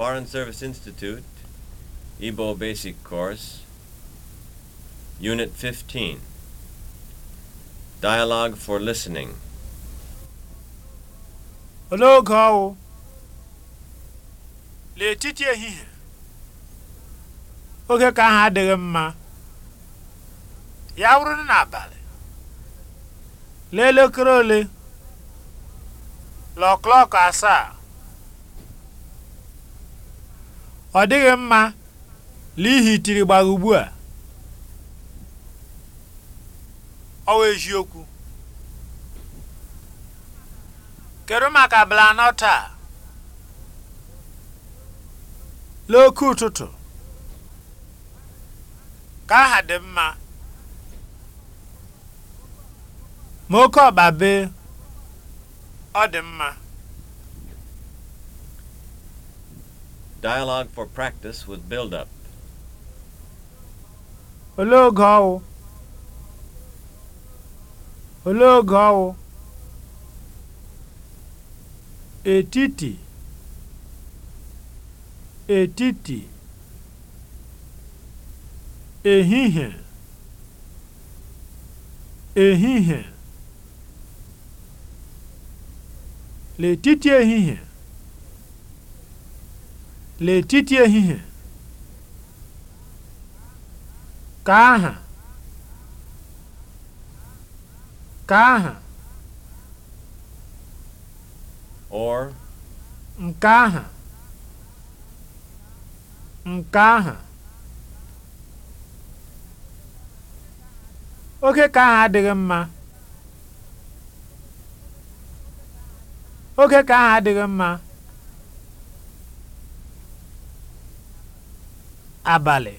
Foreign Service Institute, Igbo Basic Course, Unit 15 Dialogue for Listening. oge ọwụ n'etiti ehihie oge ka ahụ adịghị mma ya wụrụ n'abalị Lelekere ole lọọ asaa ọ dịghị mma n'ihi tiri gbara ugbu a ọwa eziokwu kedu maka blanọ taa n'oke ụtụtụ ka aha dị mma ma oke ọba bee ọ dị mma Dialogue for practice with build-up. Olee oge ọwụ? Olee oge ọwụ? Etiti. Etiti. Ehihie. Ehihie. L'etiti ehihie. N'etiti ehihie ka aha ka aha or nke aha nke aha oke ka aha adịghị mma oke ka aha adịghị mma abalị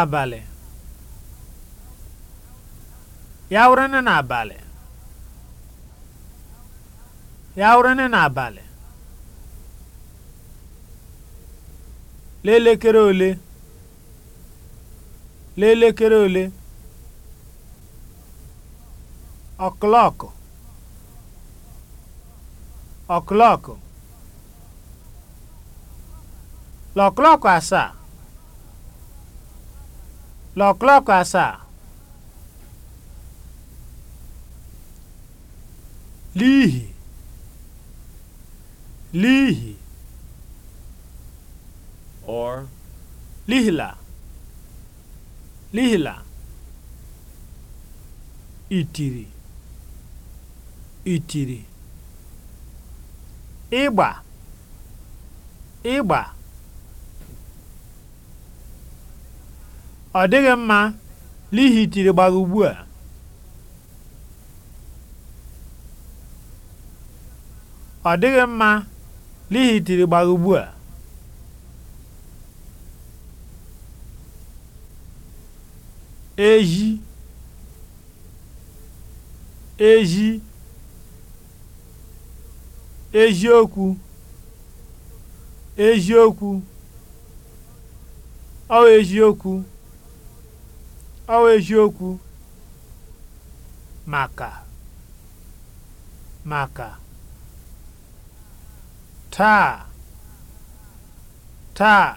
abalị ya wụrụ n'abalị ya wụrụ n'abalị lelekere ole lelekere ole ọklọkụ ọklọkụ lọklọkụ asaa lọklọkụ asaa n'ihi n'ihi or lihila lihila itiri itiri ịgba ịgba ọ dịghị mma n'ihi tiri gbara ugbu a ọ dịghị mma n'ihi tiri gbara ugbu a eji eji eziokwu eziokwu ọ eziokwu ọ eziokwu maka maka taa taa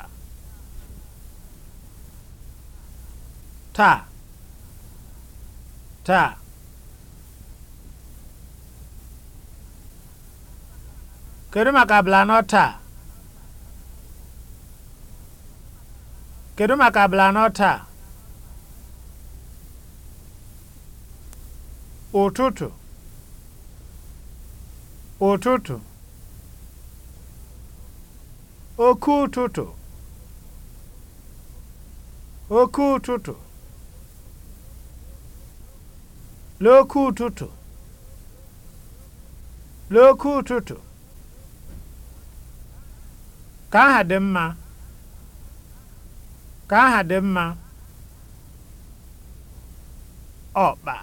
taa taa kedu maka abala anọ taa kedu maka abala taa ụtụtụ ụtụtụ oke ụtụtụ oke ụtụtụ n'oke ụtụtụ n'oke ụtụtụ ka aha dị mma ka aha dị mma ọkpa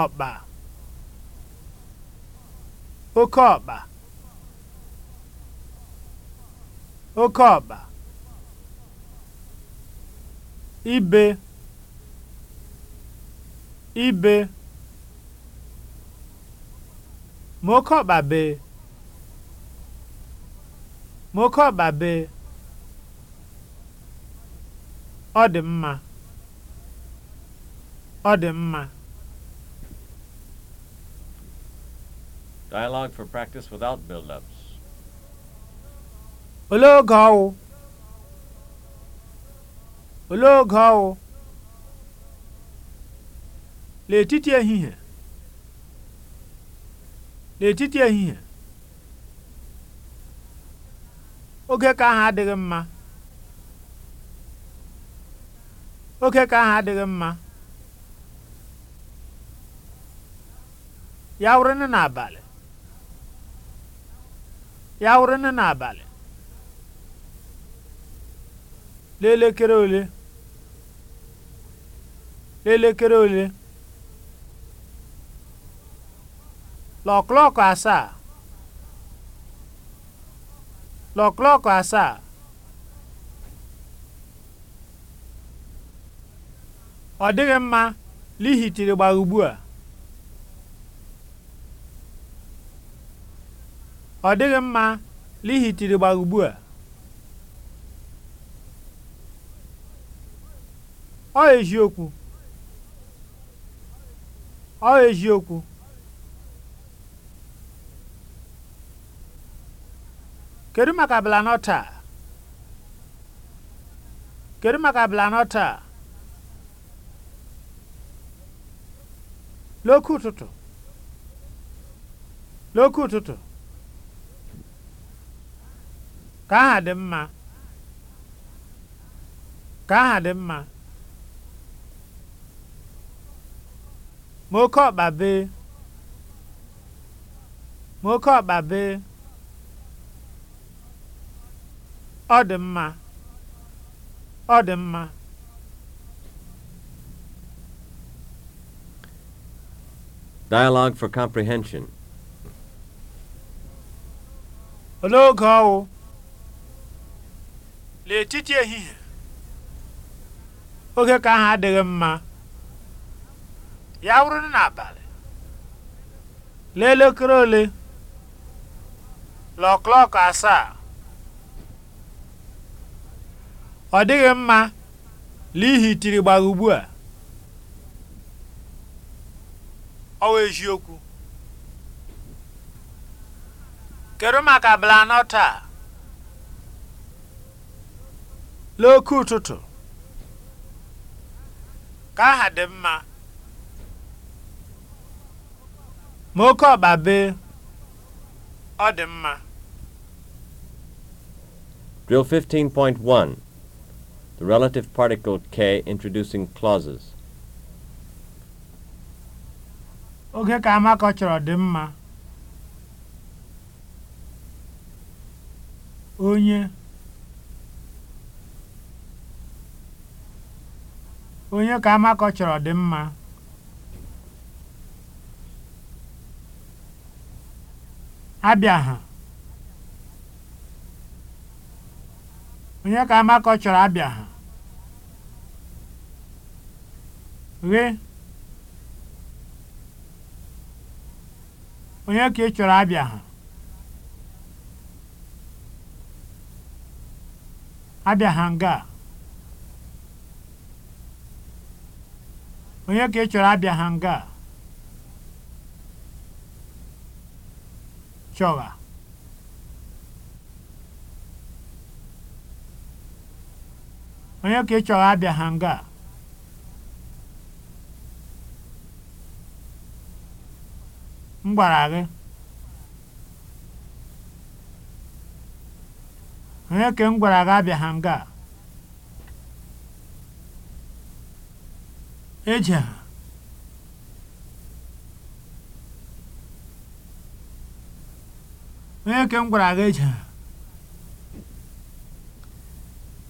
ọkpa oke ọkpa oke ọkpa ibe ibe ma oke ọkpa bee ma oke ọkpa bee ọ dị mma ọ dị mma Dialogue for practice without build-ups. Olee oge ọwụ? Olee oge ọwụ? N'etiti ehihie. l'etiti ehihie. Oge ka ahụ adịghị mma. Oge ka ahụ adịghị mma. Ya wụrụnụ n'abalị. ya wụrụ n'abalị l'elekere ole l'elekere ole l'ọklọkụ asaa l'ọklọkụ asaa ọ dịghị mma lihi tiri gbaa ugbu a ọ dịghị mma n'ihi tirigbara ugbu a ọ eziokwu ọ eziokwu kedu maka abala taa kedu maka abala taa ụtụtụ n'oke ụtụtụ ka aha dị mma ka aha dị mma ma oke ọkpa bee ma oke ọkpa bee ọ dị mma ọ dị mma Dialogue for comprehension. Olee oge ọwụ n'etiti ehihie oge ka ahụ adịghị mma ya wụrụ n'abalị n'elekere ole lọklọk asaa ọ dịghị mma n'ihi tiri gbara ugbu a ọ wụ eziokwu kedu maka blanọ taa n'oke ụtụtụ ka aha dị mma ma oke ọkpa bee ọ dị mma Drill 15.1 The relative particle K introducing clauses Oge ka Amaka chọrọ dị mma onye onye ka amakọ chọrọ dị mma abịa ha onye ka amakọ chọrọ abịa ha ghe onye ka ị chọrọ abịa ha abịa ha nga a onye ka ị chọrọ abịa ha nga chọgha onye ka ị chọrọ abịa ha nga m gwara gị onye ka m gwara gị abịa ha nga ejeha onye ke m gwara gị ejeha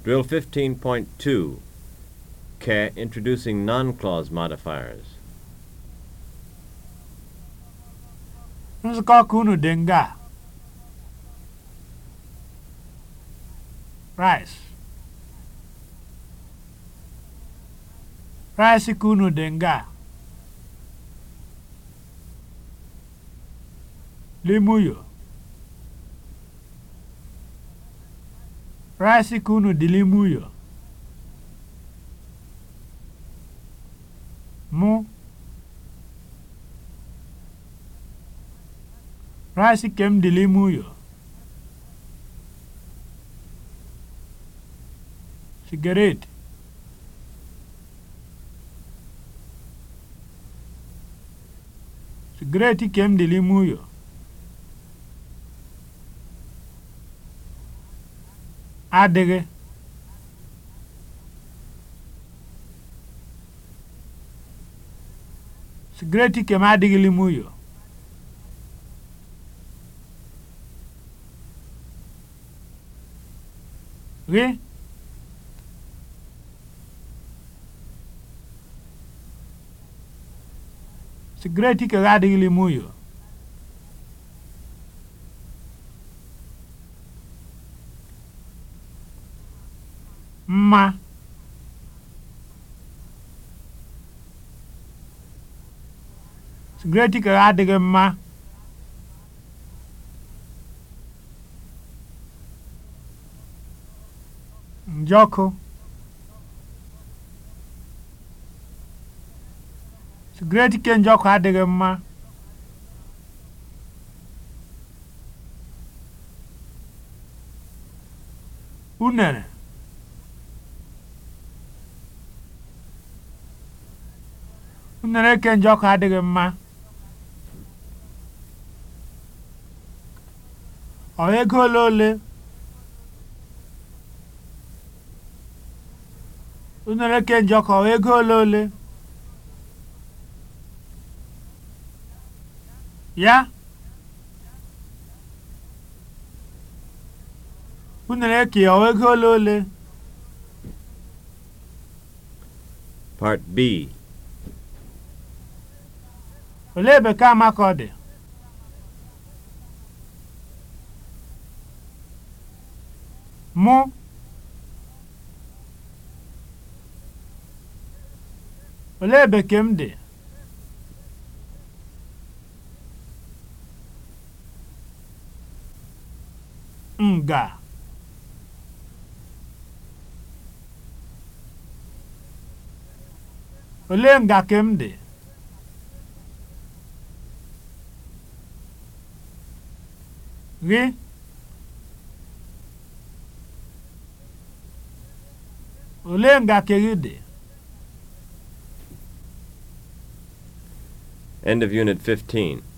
Drill 15.2 K. Introducing non-clause modifiers. Nzukọ ọkụ unu dị nga. Rice. Rice ka dị nga a? Limuyo. Rice ka dị limuyo? Mụ. Rice ka m dị limuyo? Sigaret. Great ike m dị n'ime ụyọ. Adịghị. Great m adịghị n'ime ụyọ. Gị. sigaret ikere adịghịlị m uyo mma sigaret ikere adịghị mma njọkụ sigaret kenji ọkụ adịghị mma unere unere kenji ọkụ adịghị mma ọ ego ole ole unere kenji ọkụ ọ ego ole ole ya unu na-eke ego ole ole Part B olee bekee amaka ọ dị mụ olee bekee m dị nga olee nga ka m dị gị olee nga ka gị dị End of Unit 15